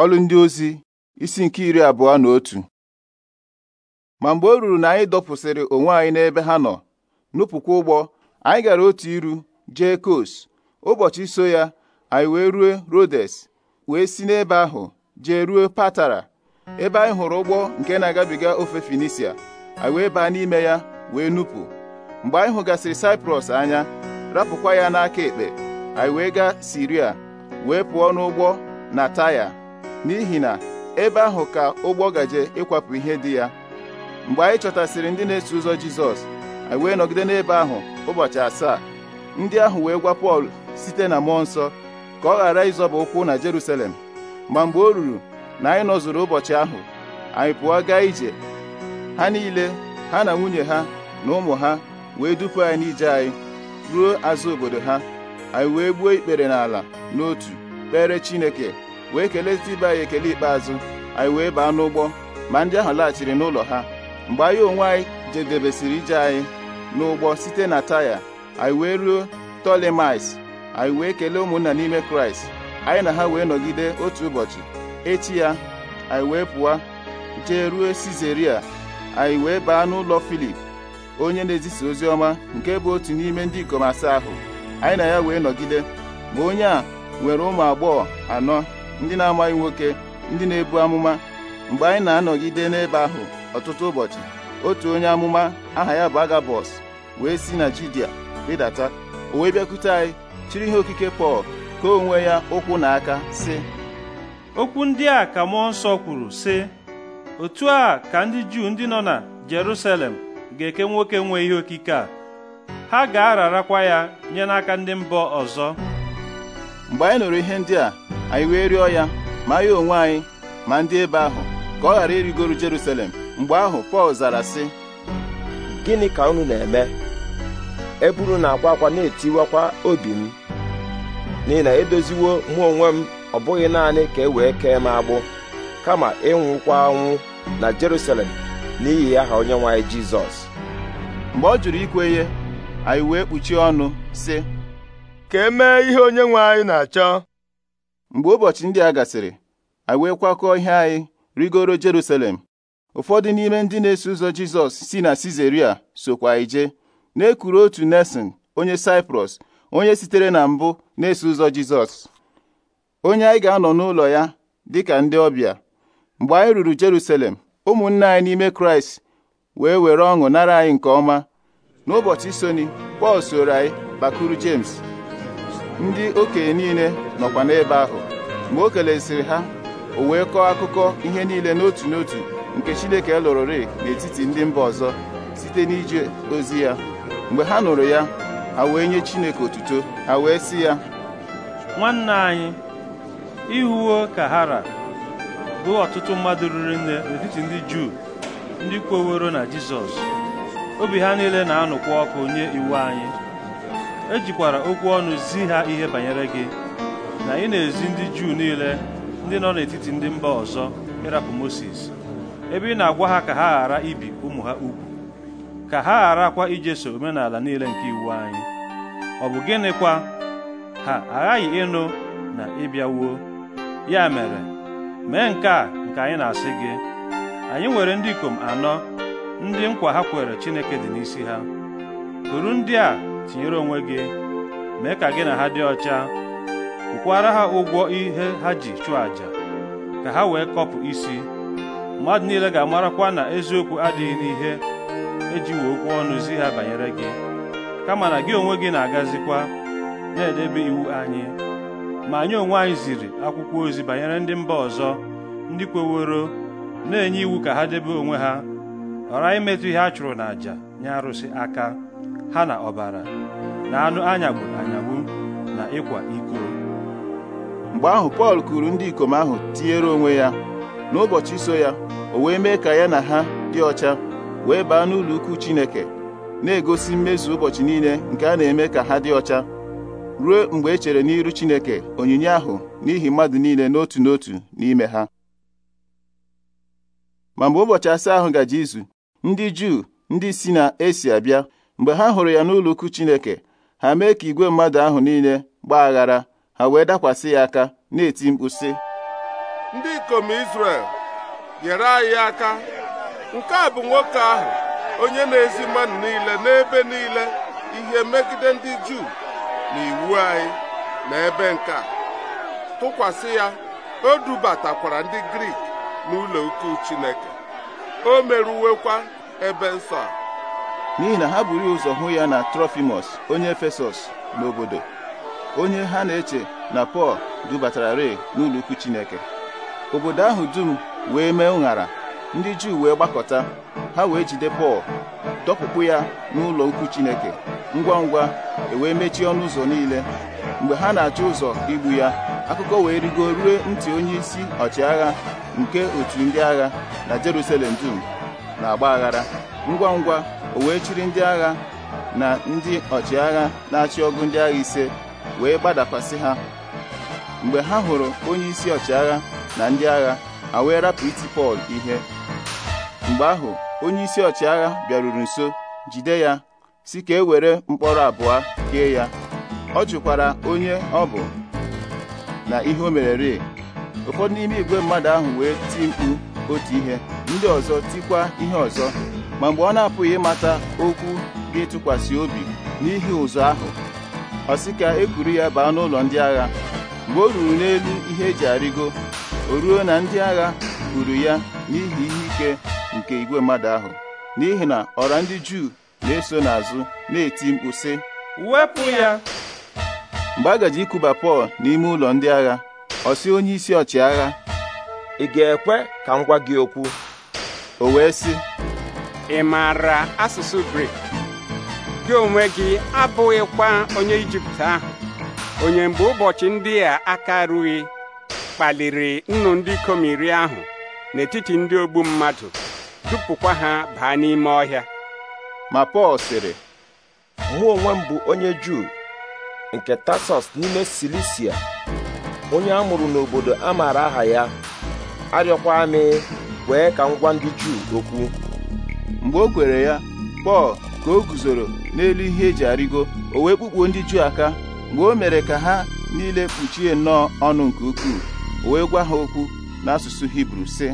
ọlụ ndị ozi isi nke iri abụọ na otu ma mgbe o ruru na anyị dọpụsịrị onwe anyị n'ebe ha nọ nupụkwa ụgbọ anyị gara otu iru jee kos ụbọchị so ya anyị wee rue rodes wee si n'ebe ahụ jee ruo patara ebe anyị hụrụ ụgbọ nke na-agabiga ofe finisia anyị wee baa n'ime ya wee nupụ mgbe anyị hụgasịrị saiprọs anya rapụkwa ya n'aka ekpe anyị wee gaa siria wee pụọ n'ụgbọ na taya n'ihi na ebe ahụ ka ụgbọ gaje ịkwapụ ihe dị ya mgbe anyị chọtasịrị ndị na-eso ụzọ Jizọs anyị wee nọgide n'ebe ahụ ụbọchị asaa ndị ahụ wee gwa Pọl site na mmụọ nsọ ka ọ ghara ịzọba ụkwụ na Jeruselem, ma mgbe o ruru na anyị nọzụrụ ụbọchị ahụ anyị pụọ gaa ije ha niile ha na nwunye ha na ụmụ ha wee dupu anyị n'ije anyị ruo azụ obodo ha anyị wee gbuo ikpere n'ala n'otu kpere Chineke wee kelee ibe anyị ekele ikpeazụ anyị wee baa n'ụgbọ ma ndị ahụ laghachiri n'ụlọ ha mgbe anyị onwe anyị jedebesịrị ije anyị n'ụgbọ site na taya anyị wee ruo tolemais anyị wee kelee ụmụnna n'ime kraịst anyị na ha wee nọgide otu ụbọchị echi ya anyị wee pụọ jee ruo sizeria anyị wee baa n'ụlọ filip onye na-ezisa ozi ọma nke bụ otu n'ime ndị ikom asaa ahụ anyị na ya wee nọgide ma onye a nwere ụmụ agbọghọ anọ ndị na-amaghị nwoke ndị na-ebu amụma mgbe anyị na-anọgide n'ebe ahụ ọtụtụ ụbọchị otu onye amụma aha ya bụ Agabọs wee si na Judia rịdata o wee bịakwute anyị chiri ihe okike Pọl ka onwe ya ụkwụ na aka sị okwu ndị a ka mmụọ nsọ kwuru sị otu a ka ndị Juu ndị nọ na Jerusalem ga-eke nwoke nwe ihe okike a ha ga-ararakwa ya nye n'aka ndị mbọ ọzọ mgbe anyị nụrụ ihe ndị a anyị wee rịọ ya ma ya onwe anyị ma ndị ebe ahụ ka ọ ghara irigoro Jerusalem mgbe ahụ Pọl zara sị gịnị ka unu na-eme eburu na-akwa akwa na-etiwakwa obi m n'ihi na edoziwo mụ onwe m ọ bụghị naanị ka e wee kee m agbụ kama ịnwụkwa anwụ na Jerusalem n'ihi aha onyenwe anyị Jizọs mgbe ọ jụrụ ikwe ihe anyị wee kpuchie ọnụ sị ka e mee ihe onye nwe anyị na-achọ mgbe ụbọchị ndị a gasịrị anyị wee kwakọọ ihe anyị rigoro Jerusalem ụfọdụ n'ime ndị na-eso ụzọ Jizọs si na Sizaria sokwa ije na-ekuru otu Nesin onye Saịprọs onye sitere na mbụ na-eso ụzọ Jizọs onye anyị ga-anọ n'ụlọ ya dịka ndị ọbịa mgbe anyị ruru Jerusalem ụmụnne anyị n'ime Kraịst wee were ọṅụ nara anyị nke ọma n'ụbọchị soni Pọl soro anyị bakuru James ndị okenye niile nọkwa n'ebe ahụ ma o kelesiri ha o wee kọọ akụkọ ihe niile n'otu n'otu nke Chineke lụrụrị n'etiti ndị mba ọzọ site n'ije ozi ya mgbe ha nụrụ ya ha wee nye Chineke otuto ha wee sị ya nwanne anyị ihuwo kahara bụ ọtụtụ mmadụ ruru nne n'etiti ndị Juu ndị kwoworo na Jizọs obi ha niile na-anụkwa ọkụ nye iwu anyị ejikwara okwu ọnụ zi ha ihe banyere gị na ị na-ezi ndị Juu niile ndị nọ n'etiti ndị mba ọzọ ịrapụ Mosis ebe ị na-agwa ha ka ha ghara ibi ụmụ ha ugwu ka ha gharakwa ijeso omenala niile nke iwu anyị ọ bụ gịnịkwa ha aghaghị ịnụ na ịbịawuo ya mere mee nke a nke anyị na-asị gị anyị nwere ndị ikom anọ ndị nkwa ha kwere Chineke dị n'isi ha kuru ndị a tinyere onwe gị mee ka gị na ha dị ọcha kwukwara ha ụgwọ ihe ha ji chụọ àjà ka ha wee kọpụ isi mmadụ niile ga-amarakwa na eziokwu adịghị n'ihe e wee okwu ọnụ zi ha banyere gị kama na gị onwe gị na-agazikwa na-edebe iwu anyị ma anyị onwe anyị ziri akwụkwọ ozi banyere ndị mba ọzọ ndị kweworo na-enye iwu ka ha debe onwe ha ghara imetụ ihe a chụrụ n'àjà nye arụsị aka ha na ọbara na anụ anyagburu anyagbu na ịkwa iko mgbe ahụ Pọl kụrụ ndị ikom ahụ tinyere onwe ya n'ụbọchị so ya o wee mee ka ya na ha dị ọcha wee baa n'ụlọ ukwu Chineke na-egosi mmezu ụbọchị niile nke a na-eme ka ha dị ọcha ruo mgbe e chere n'iru Chineke onyinye ahụ n'ihi mmadụ niile n'otu n'otu n'ime ha ma mgbe ụbọchị asaa ahụ gaje izu ndị Juu ndị si na Esi abịa mgbe ha hụrụ ya n'ụlọ ukwu Chineke ha mee ka igwe mmadụ ahụ niile gbaa aghara ha wee dakwasị ya aka na-eti mkpu ndị ikom Izrel nyere anyị aka nke a bụ nwoke ahụ onye na-ezi mmadụ niile n'ebe niile ihe megide ndị Juu na iwu anyị na ebe nke a tụkwasị ya o dubatakwara ndị Grik n'ụlọ ukwu Chineke o meruwekwa ebe nsọ a n'ihi na ha buru ụzọ hụ ya na trofimus onye Efesọs n'obodo onye ha na-eche na Pọl dubatara re n'ụlọ Chineke obodo ahụ dum wee mee ụṅara ndị Juu wee gbakọta ha wee jide Pọl dọpụpụ ya n'ụlọ ukwu Chineke ngwa ngwa ewee mechie ọnụ ụzọ niile mgbe ha na-achọ ụzọ igbu ya akụkọ wee rigo rue ntị onye isi ọchịagha nke otu ndị agha na Jerusalem dum na ọgba aghara ngwa ngwa o wee chiri ndị agha na ndị ọchịagha na-achị ọgụ ndị agha ise wee gbadakwasị ha mgbe ha hụrụ onye isi ọchịagha na ndị agha ha wee rapụ iti Pọl ihe mgbe ahụ onye isi ọchịagha bịaruru nso jide ya si ka e were mkpọrọ abụọ kee ya ọ jụkwara onye ọ bụ na ihe o merere ụfọdụ n'ime igwe mmadụ ahụ wee ti mkpu otu ihe ndị ọzọ tikwa ihe ọzọ ma mgbe ọ na-apụghị ịmata okwu ga-etụkwasị obi n'ihi ụzọ ahụ ọ sị ka e kwuru ya baa n'ụlọ ndị agha mgbe o ruru n'elu ihe eji arịgo o ruo na ndị agha kwuru ya n'ihi ihe ike nke igwe mmadụ ahụ n'ihi na ọra ndị Juu na-eso n'azụ na-eti mkpu sị wepụ ya mgbe a gaji ikuba Pọl n'ime ụlọ ndị agha ọ sị onye isi ọchịagha ị ga-ekwe ka m gwa gị okwu o wee sị ị maara asụsụ Grik gị onwe gị abụghịkwa onye Ijipt ahụ onye mgbe ụbọchị ndị a aka rughị kpaliri nnu ndị ikom iri ahụ n'etiti ndị ogbu mmadụ dupụkwa ha baa n'ime ọhịa ma Pọl sịrị mụ onwe m bụ onye Juu nke Tasọs n'ime Silisia onye a mụrụ n'obodo a maara aha ya arịọkwa amị wee ka ngwa ndị Juu okwu mgbe o kwere ya Pọl ka o guzoro n'elu ihe eji arịgo o wee kpukpuo ndị Juu aka mgbe o mere ka ha niile kpuchie nnọọ ọnụ nke ukwuu o wee gwa ha okwu n'asụsụ Hibru sị